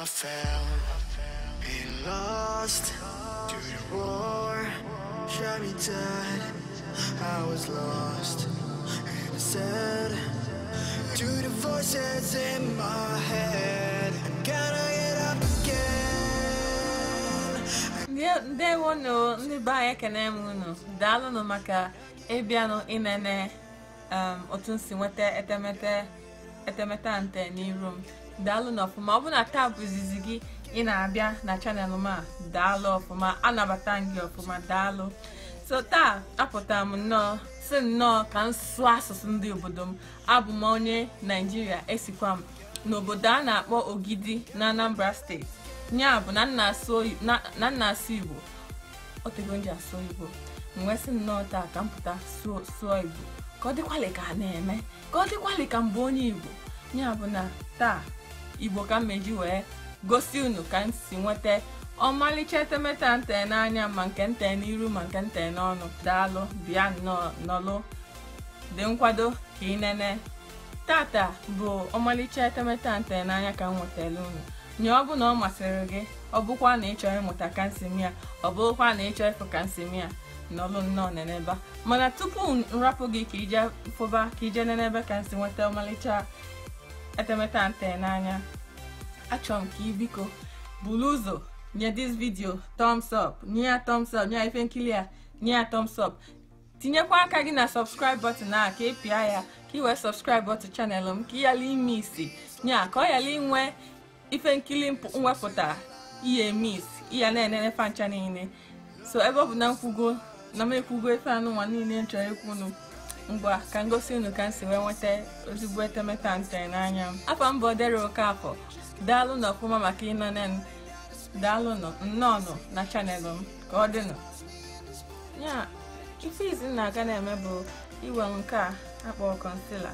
I fell Been lost Through the war, Shot me dead I was lost And I said To the voices in my head I gotta get up again Yeah, they won't know Nibaya can emuno Dalo no maka Ebiano inene Um, otu nsi nweta etemete etemete ante n'iru daalụ na ọfụma ọ bụ na taa bụ izizi gị ị na-abịa na chanel m a daalụ ọfụma anabata m gị ọfụma daalụ so taa apụtara m nnọọ si nnọọ ka m sụọ asụsụ ndị obodo m abụ m onye naijiria esikwa m n'obodo a na-akpọ ogidi na anambra steeti ya bụ na nna asụ igbo otego nji asụ igbo mgbe si nnọọ taa ka m pụta sụọ igbo ka ọ dịkwalị ka a na-eme ka ọ dịkwalị ka mbụ onye igbo ya bụ na taa igbo ka mmeji wee gosi unu ka m si nweta ọmalịcha etemete a nte n'anya ma nke nte n'iru ma nke nte n'ọnụ daalụ bịa nọlụ dị nkwado ka ị nene tata bụ ọmalịcha etemete a nte n'anya ka m nwetara unu nye ọ bụ na ọ masịrị gị ọ bụkwa na ịchọ ịmụta kansimia ọ bụrụkwa na ịchọ ịfụ kansimia n'ọlụ nnọọ neneba mana tupu nrapụ gị ka ije fụba ka ije nenebe ka nsi nweta ọmalịcha etemete a nte n'anya achọrọ m ka ị biko buru ụzọ nye dis vidio thumbs up nye ya thumbs up nye ya ife nkili a nye ya thumbs up tinyekwa aka gị na subscribe button a ka ịpịa e ya ka ị wee subscribe button channel m ka ị yala ime isi nya ka ọ yala inwe ife nkili mwepụta ihe mis iya na-enene fancha niile so ebe ọ bụ na nkwugo na m ekwugo ife anụnwa niile m chọrọ ikwu ngwa ka m gosi unu ka m si wee nweta ozugbo etemete ntere n'anya m afọ mbụ Dere Okafor daalụ nọ ọfụma maka ịnọne m daalụ nọ na chanelụ m ka ọ dịnụ ya ife izi na-aga na-eme bụ iwe nke a akpọrọ kọnsila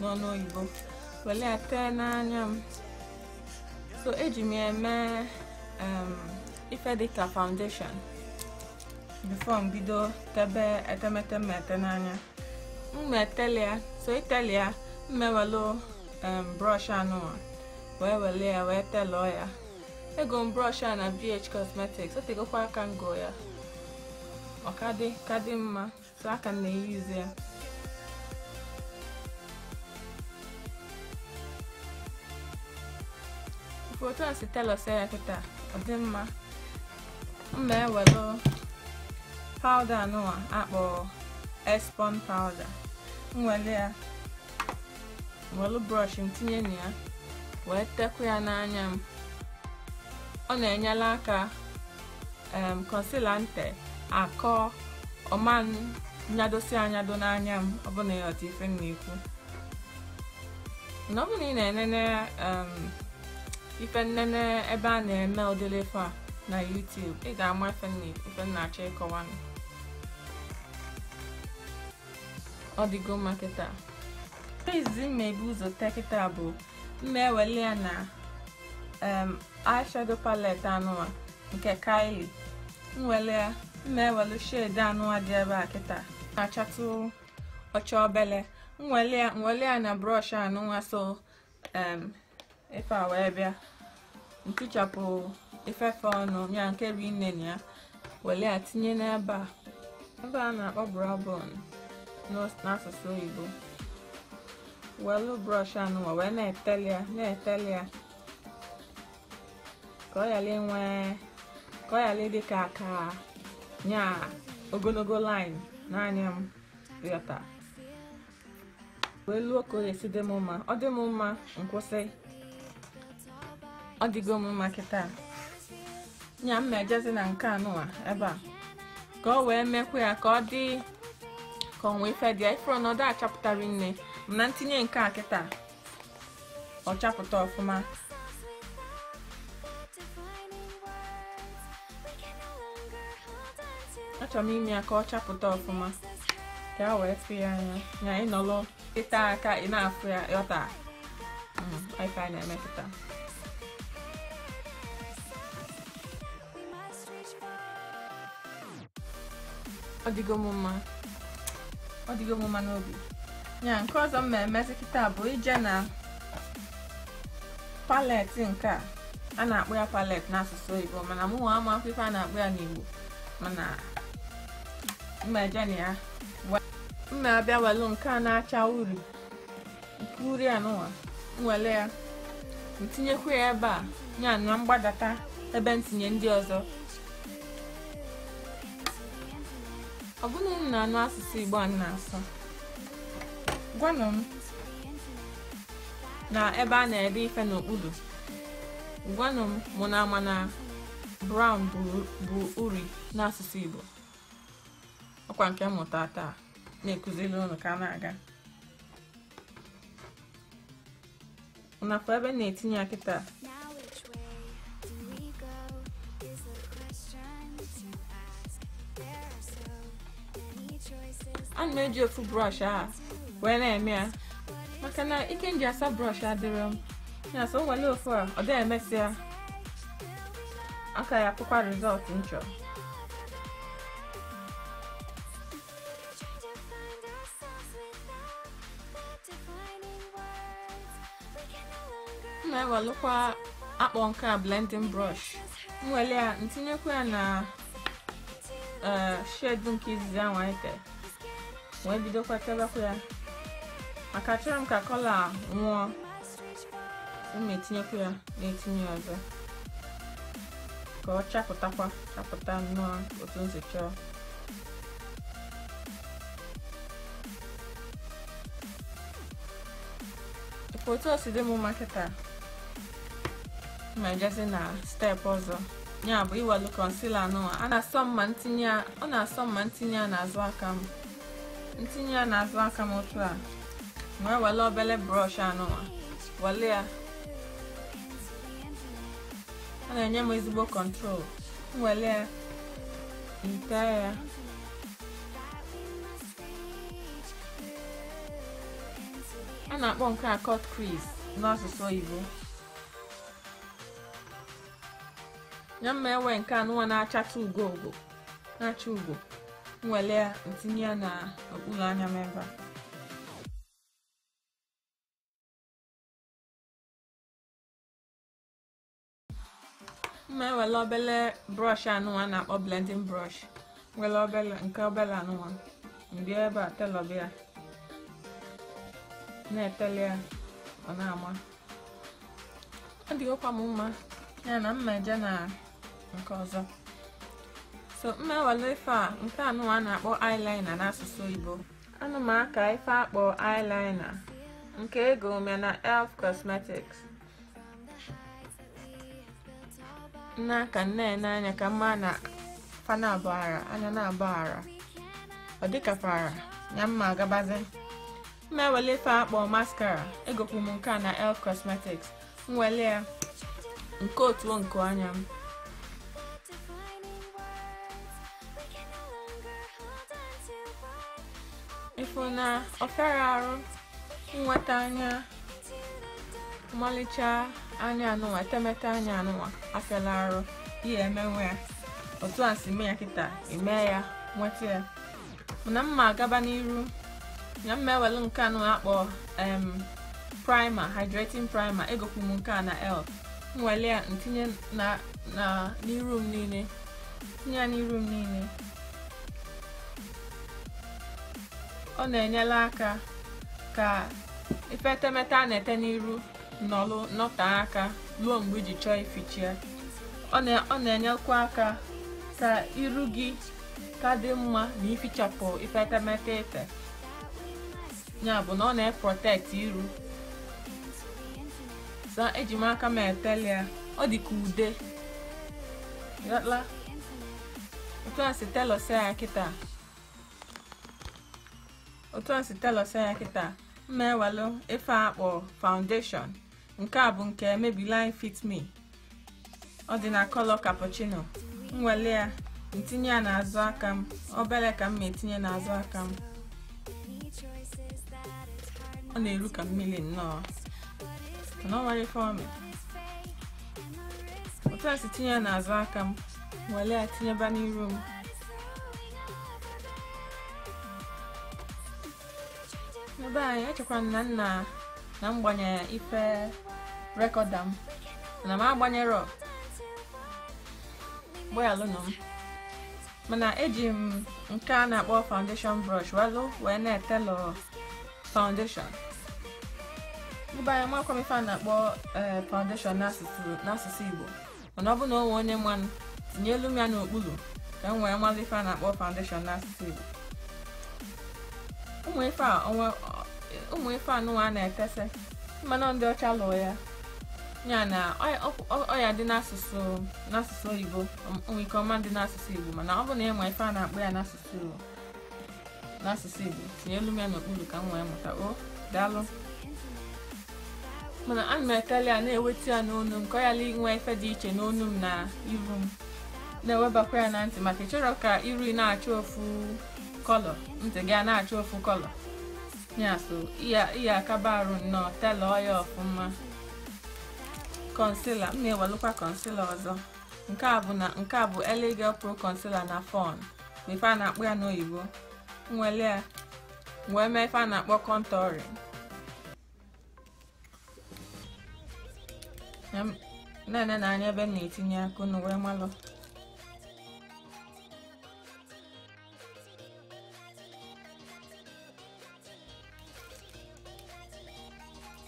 n'ọnụ oyibo were ya tee n'anya m so eji m eme ife dịka foundation bifo m bido tebe etemete m ete n'anya tele ya so ya mmewelu em brọsh anụwa wee wele ya wee telụọ ya ego m brọsh a na BH Cosmetics otegokwa aka ngo ya ọ kadị mma so aka m na-eyuzi ya foto a si telos ya kịta ọ dị mma mma ewelu pawda anụwa akpọ espon pawda nwere ya welu brọsh m tinye na ya wee tekwa ya n'anya m ọ na-enyela aka em konsila nte akọ ọma nyadosi anyado n'anya m ọbụna ịghọta ife m na-ekwu na ị na-enene ife nnene ebe a na-eme udele a na YouTube ị ga-ama ife m na-achọ ịkọwa ọ dịgo mma kịta izizi mmebi ụzọ tee kịta bụ mma ewele ya na eyeshadow palette anụwa nke Kylie nwele ya mma ewelu shade anụwa dị ebe a kịta na-achatụ ọcha obele nwele ya ya na brọsh anụwa so ife a wee bịa ntichapụ ifefe ọnụ ya nke bụ ine ya wele ya tinye n'ebe a ebe a na-akpọ brabon n'asụsụ oyibo welụ brọsh anụnwa wee na-eteli ya na-eteli ya ka ọ ghara inwe ka ọ ghara ịdị ka aka nya ogologo lin n'anya m yọta wee luo ka ọ ga-esi dị m mma ọ dị m mma nkwụsị ọ dịgo mma kịta nya m na-ejezi na nke anụnwa ebe a ka ọ wee mekwa ya ka ọ dị ka ọ wee fedịa ifuru achapụtara nne m na ntinye nke a kịta ọ chapụta ọfụma achọrọ m ime ya ka ọ chapụta ọfụma ka a wee fụ ya anya na ịnọrọ ịta aka ị na-afụ ya yọta hmm, ife a na-emepụta ọ dịgo m mma ọ n'obi ya nke ọzọ m na-emezi kịta bụ ije na palet nke a na-akpọ ya palet n'asụsụ oyibo mana mụnwa ama akwụkwọ a na-akpọ ya n'igbo mana mmeje na ya mma abịa welu nke a na-acha uri nke uri anụnwa nwele ya ntinyekwa ya ebe a ya na mgbadata ebe ntinye ndị ọzọ ọ bụrụ na m na-anụ asụsụ Igbo a na-asụ gwanụ m na ebe a na-ede ife n'okpuru gwanụ m mụ na ama na brown bụ uri n'asụsụ Igbo ọkwa nke mmụta taa na-ekụziri ụnụ ka a na-aga nakwa ebe na-etinye akịta na-eji ofu brọsh a wee na-eme ya maka na ike nji asa brọsh adịrọ m ya so ofu a ọ dịghị emesịa aka ya akwụkwa rizọt m chọrọ m na-ewelụkwa akpọ nke a blending brush m wele ya ntinyekwa ya na eh, shade nke izizi ahụ anyị wee bidokwa chọbakwa ya maka achọrọ m ka kọla a nwụọ ụmụ etinyekwu ya na-etinye ọzọ ka ọ chapụtakwa chapụta nnọọ otu nsi chọọ otu o si dị m makịta ma ejezi na steepụ ọzọ ya bụ iwelu konsila nụwa ọ na-asọ mma ntinye a azụ aka m ntinye ya n'azụ aka m otu a wee e wele obele brọsh anụnwa wele ya ọ na-enye m ezigbo kọntrol wele ya ite ya a na-akpọ nke a cut crease n'asụsụ oyibo ya mma ewe nke anụwa na achata na-acha ugo nwele ya ntinye ya okpuru anya m ebe a mma ewele obele brọsh anụnwa na-akpọ blending brọsh nwere obele nke obele anụnwa mbịa ebe a telọbịa na-etele ya ọ na-ama ọ dịghịkwa m mma ya na mma eje na nke ọzọ so mmewale ife a nke anụwa a na-akpọ eyeliner n'asụsụ Igbo anụ aka ife akpọ eyeliner nke ego ome na elf cosmetics nna ka nne n'anya ka mma na fana anya na ọ dị ka fara ya mma agabazi mmewele ife akpọ maskara egokwu m nke a na elf cosmetics nwele ya nke otuo nke anya m ifụ na ọfịara arụ nweta anya mmalịcha anya anụnwa etemete anya anụnwa afela arụ ihe emenwe ya otu a si mee ya kịta eme ya nweta ya mana mma agaba n'iru ya mma ewelu nke anụ akpọ em primer hydrating primer egokwu m nke a na l ya ntinye n'iru m niile tinye ya n'iru m niile ọ na-enyere aka ka epetemete a na-ete n'iru nọlụ nọtee aka ruo mgbe iji chọọ ifichi ya ọ na-enyekwa aka ka iru gị ka dị mma na ifichapụ epetemete ife ya bụ na ọ na-eprotect iru sa eji m aka m etele ya ọ dị ka ude ghọtala otu a si telọsia ya kịta otu a si telọsa ya kịta mma ife akpọ foundation nke a bụ nke line Fit Me ọ dị na color cappuccino nwele ya ntinye ya n'azụ aka m obere ka m ma etinye n'azụ aka m ọ na-eru ka mmiri nnọọ mana ọ otu a si tinye ya n'azụ aka m nwere ya tinyeba n'iru m ebe anyị echekwara m na nna na m gbanyere ife rekọda m na m agbanyerọ nọ m mana eji m nke a na-akpọ foundation brọsh wazụ wee na etelọ foundation ebe anyị makwa ife a na-akpọ eh, foundation n'asụsụ Igbo mana ọ bụ na onwe onye mmanụ elu m ya n'okpuru ka m wee mmalụ ife a na-akpọ foundation n'asụsụ Igbo ụmụ ife a ụmụ ife anụnwa na ekesa mmanụ ndị ọcha lụọ ya ya na ọya dị n'asụsụ n'asụsụ oyibo ike ọma dị n'asụsụ igbo mana ọ bụ na ịma ife a na-akpọ ya n'asụsụ n'asụsụ igbo tinye elu m ya n'okpuru ka m wee mụta o daalụ mana na m etela ya na-eweta ya n'onu m ka ọ yala inwe ife dị iche n'onu m na iru m na-ewebakwa ya na ntị maka ịchọrọ ka iru na-acha ofu kọlọ ntị gị a na-achọ ofu kọlọ ya so ihe akaba arụ nnọọ telọ ya ọfụma konsila m na-ewelụkwa konsila ọzọ nke a bụ na nke a bụ Elegel Pro Concealer na fọn ife a na-akpọ ya n'oyibo nwele ya wee mee ife a na-akpọ contouring na-ene na anya ebe m na-etinye akụ na wee malụ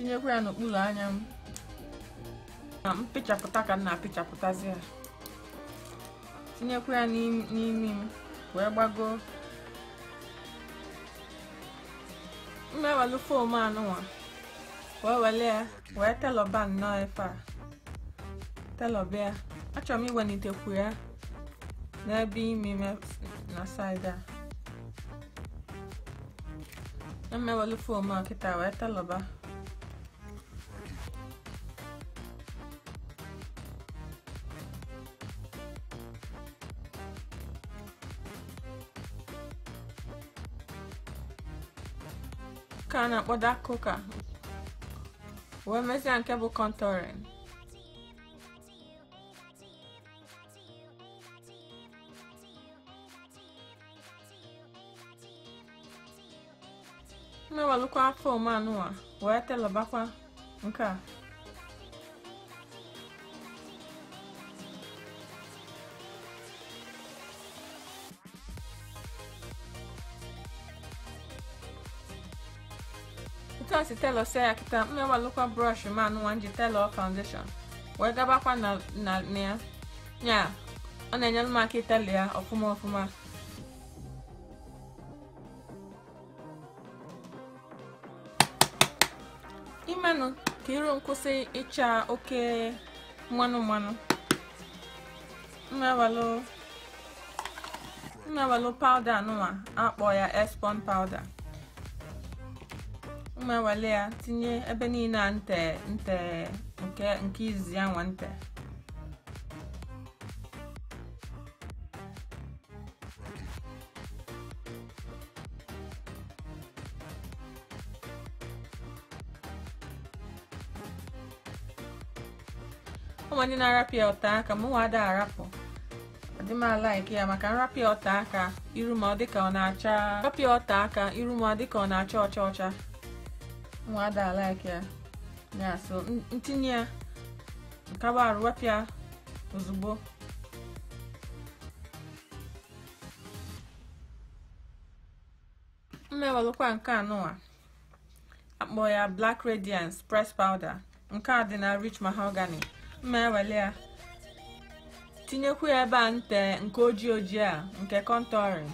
tinyekwa ya n'okpuru anya m na mpịchapụta ka m na-apịchapụtazi ya tinyekwa ya n'imi m wee gbagoo mmewelu fom anụnwa wee wele ya wee telọba nnọọ efe a telọba ya achọrọ m iwelitekwu ya n'ebe imi m na saịdị a mmewelu fom a kịta wee telọba nke a na-akpọ dark a wee mezie nke bụ contouring mmewelụkwa fom anụwa wee telebakwa nke a otu a si telọ sie ya kịta mmewalụkwa ma manụwa ji telọ foundation wee gabakwa na ya a ọ na-enyere maka aka ya ọfụma ọfụma imenụ ka iru nkwụsị ịcha oke mmanụ mmanụ mmewalụ powda akpọ ya espon powda m ewele ya tinye ebe niile a nte nte nke nke izizi ya nwa nte ụmụnne ndị na-arapịa ọta aka mụ nwa ada arapụ dị m ya maka nrapịa ọta aka iru ma ọ dịka ọ na-acha ọta aka iru ma ọ dịka ọ na-acha ọcha ọcha nwada like ya ya so ntinye ya nkaba arụ wepụ ya ozugbo mmewelụkwa nke anụwa akpọ ya black radiance press powder nke a dị na rich mahogany mmewele ya tinyekwu ya ebe a nte nke ojii ojii a nke contouring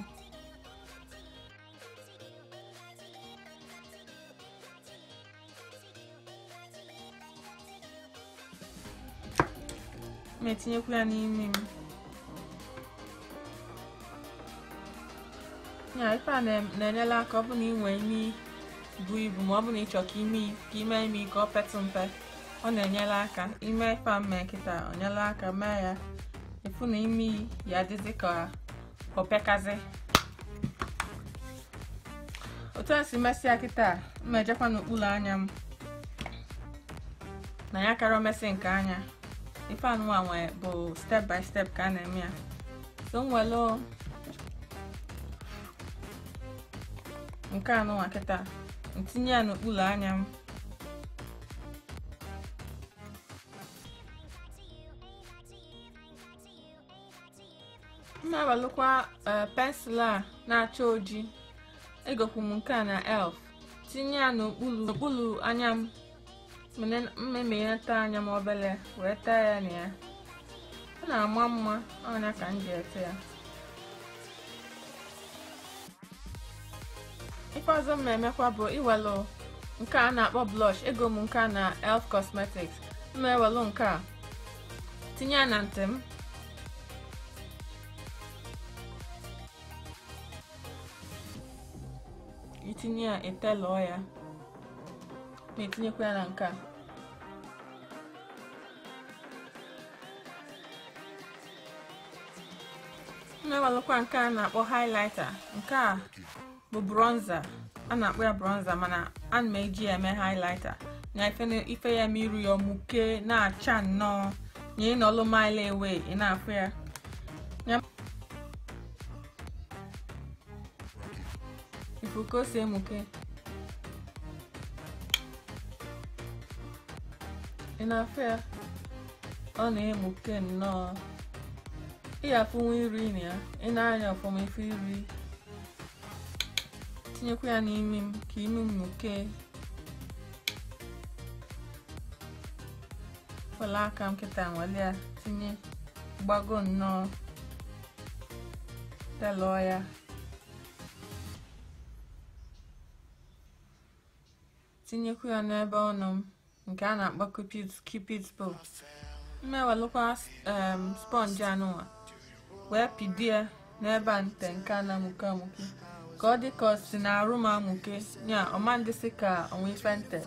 na etinyekwu ya n'ime m ya ife a na-enyela aka ọ bụ na ị nwee imi bụ ibu ma ọ bụ na ịchọ ka ime ka ime imi ka ọ mpe ọ na-enyela aka ime ife a mee nkịta ọ aka mee ya ịfụ na imi ya adịzi ka opekazi otu a si mesịa kịta mmejekwa n'okpuru anya m na ya kara omesị nke anya ife anụnwa bụ step by step ka a na-eme ya so nwelu nke anụnwa kịta ntinye ya n'okpuru anya m m na-awelụkwa eh, pensụl a na-acha oji egokwu m nke a na e elf tinye ya n'okpuru anya m mmemme ya taa anya m obele wee taa ya na ya ọ na-ama mma ọ ka m ji ete ya ikpeazụ ọzọ m emekwa bụ iwelu nke a na-akpọ blush ego m nke a na elf cosmetics ma ewelụ nke a tinye ya na ntị m itinye ya etelụọ ya na-etinyekwa ya na nke a na ewalụkwa nke a na-akpọ haịlaịta. nke a bụ bronza a na-akpọ ya bronza mana na m eji ya eme haịlaịta na ife ya ma ya ọmụke na-acha nnọọ ị na ọlụ mile ị na-afụ ya ifu si emuke na afọ ya ọ na-egbuke nnọọ ịyafụnwa iri na ya ị na-anya ọfụma ife iri tinyekwa ya n'imi m ka imi m muke wela aka m nwale ya tinye gbago nnọọ delụọ ya tinyekwa ya n'ebe ọnụ m nke um, a na-akpọ cupid's bow mmewelụkwa sponge anụnwa wee pidie n'ebe a nte nke a na-amụke amụke ka ọ dị ka ọ si na arụ m amụke ya ọmandịsị ka onwe ife nte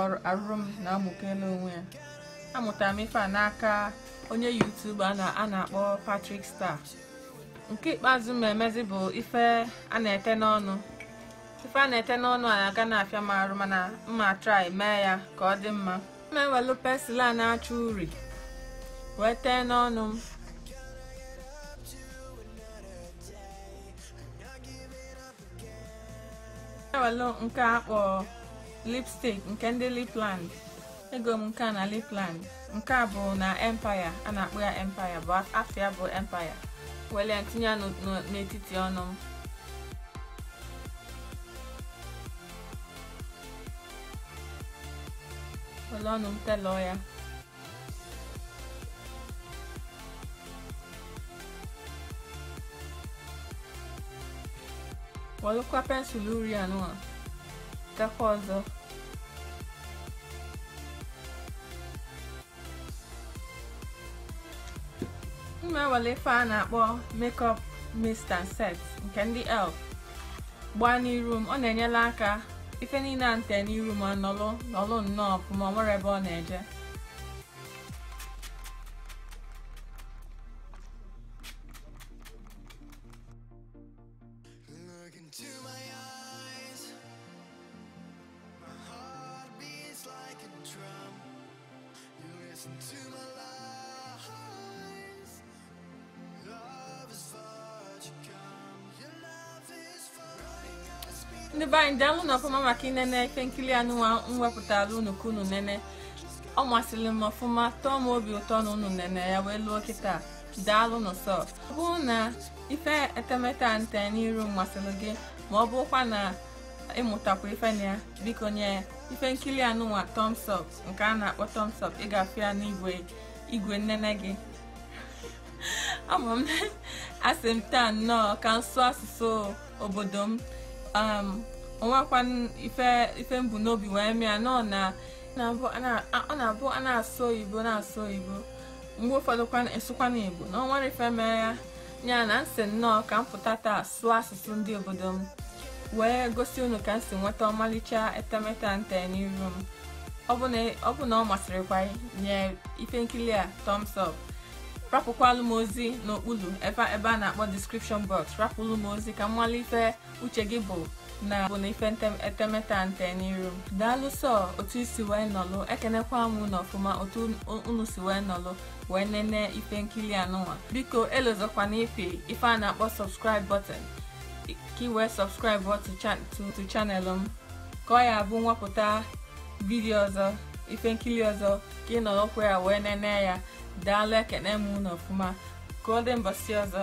ọ arụrụ m na amụke n'onwe ya amụtara m ife a n'aka onye yutube a na-akpọ Patrick Star nke ikpeazụ m emezi bụ ife a na-ete n'ọnụ ife a na-ete n'ọnụ a aga na-afịa m arụ mana mma trai mee ya ka ọ dị mma ma ewelu a na achọ uri wee tee n'ọnụ m ewelu nke akpọ lipstick nke ndị lipland ego m nke a na lipland nke a bụ na empaya a na-akpọ ya empaya bụ afịa bụ empaya wele ya ya n'etiti ọnụ m Wala nung teloya. Walikuwa pensuluria anua tako ọzọ m na-ewere ife a na-akpọ makeup mist and set nke ndị elf gbaa n'iru m ọ na-enyela aka ife niile a nte n'iru ma nọlụ nnọọ ọfụma ọ nwere ebe ọ na-eje listen to ndị be anyị daalụ na ọfụma maka inene ife nkiri anụnwa mwepụtara unu ka unu nene ọ masịrị m ọfụma tọọ m obi ụtọ na unu nene ya wee lụọ kịta daalụ n'ụsọ ọ bụrụ na ife etemete a nte n'iru masịrị gị ma ọ bụrụkwa na ịmụtakwa ife na ya biko nye ife nkiri anụnwa thumbs up nke a na-akpọ thumbs up ịgafe ya n'igwe igwe nnene gị ama m asị m taa nnọọ ka nsụ asụsụ obodo m onwekwa um, ife mbụ n'obi wee mịa na ọ na-abụ a na-asụ oyibo na-asụ oyibo mgbe ụfọdụ esụkwa n'igbo na onwere ife mee ya nya na nsị nnọọ ka m pụta taa sụọ asụsụ ndị obodo m wee gosi unu ka m si nweta ọmalịcha etemete nte n'iru m ọ bụ na ọ masịrịkwa nye ife nkiri a tom rapụkwalụ m ozi n'okpuru ebe a na-akpọ description box rapụlụ m ozi ka m nwale uche gị bụ na bụ na ife etemete a nte n'iru daalụ sọ otu isi wee nọlụ ekenekwa m na ọfụma otu unu si wee nọlụ wee nene ife nkiri anụnwa biko elozokwana ipi ife a na-akpọ subscribe button ka wee subscribe to chanelụ m ka ọ ya bụ nwapụta vidio ọzọ ife nkili ọzọ ka ị nọrọkwa ya wee nene ya daalụ ekene m unu ọfụma ka ọ dị mbọsị ọzọ